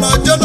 ọmọ ọjọ́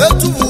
etu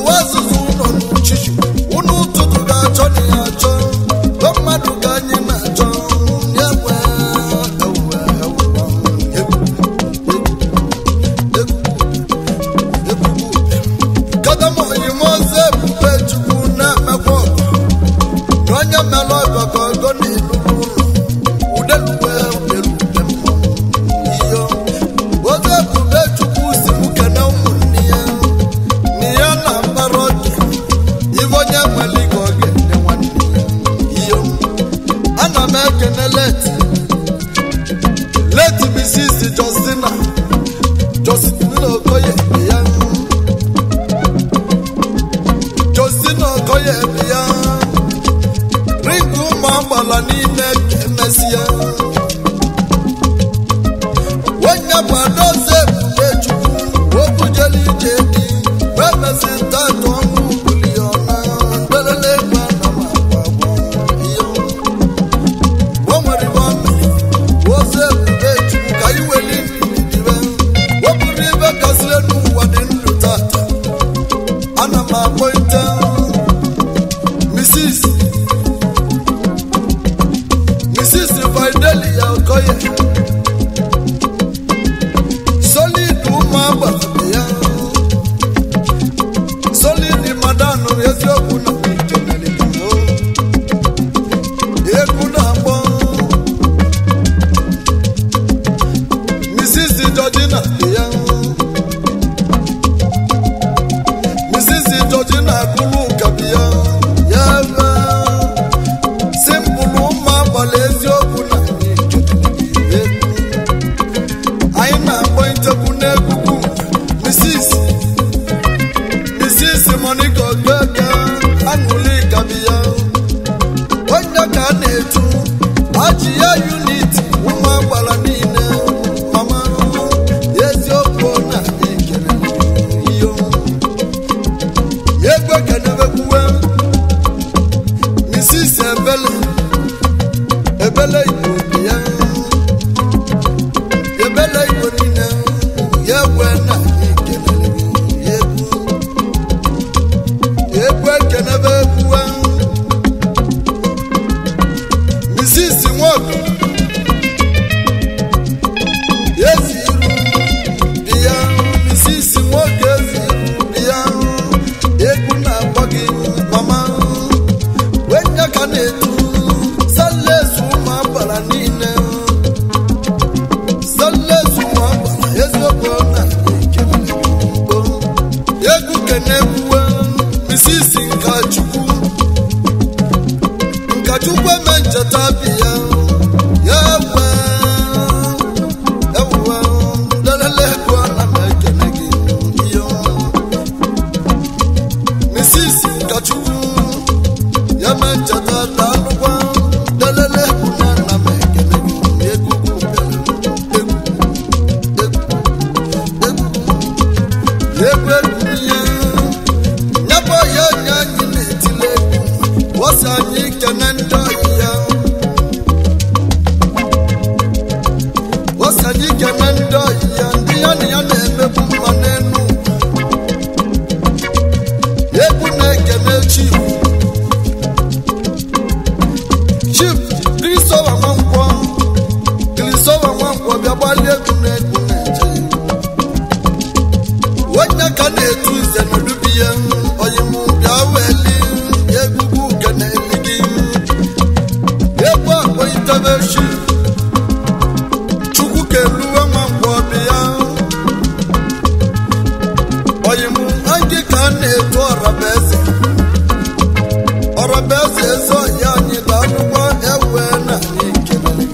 abese so ya ni banuwa ewe na ni kelele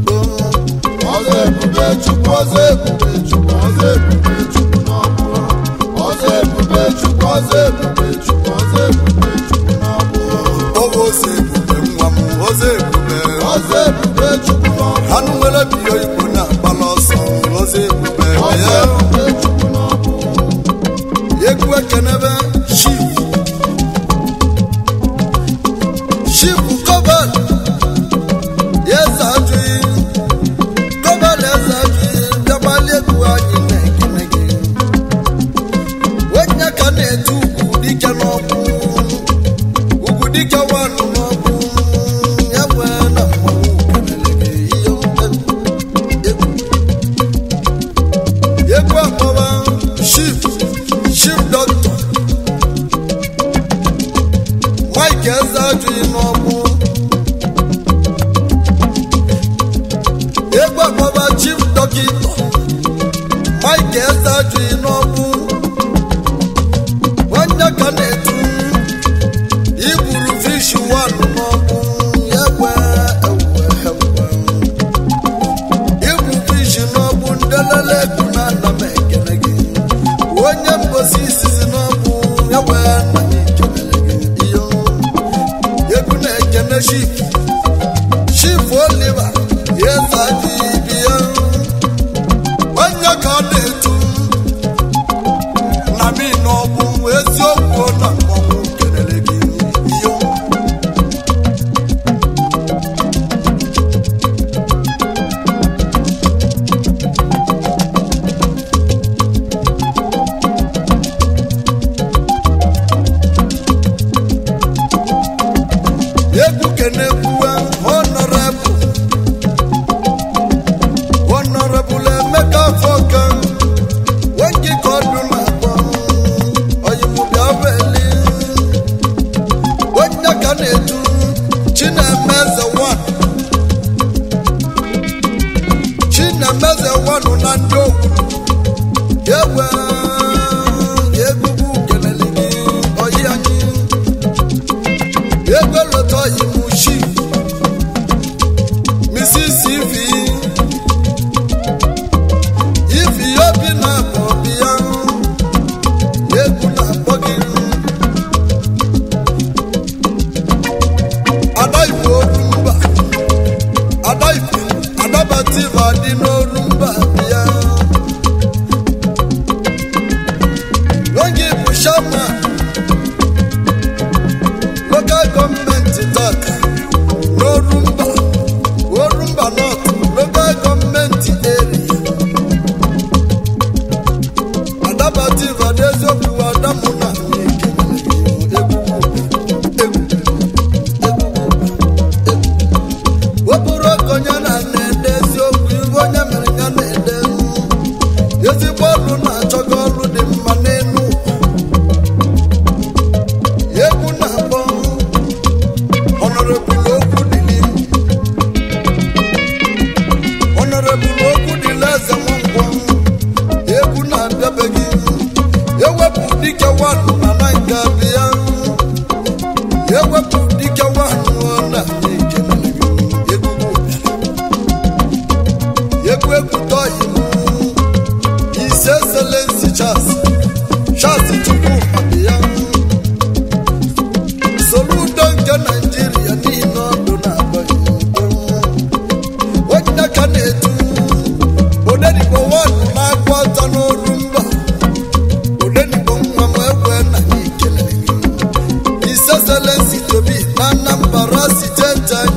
gbo ọzọ ebube chukwu ọzọ ebube Michael Sajui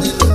Thank you.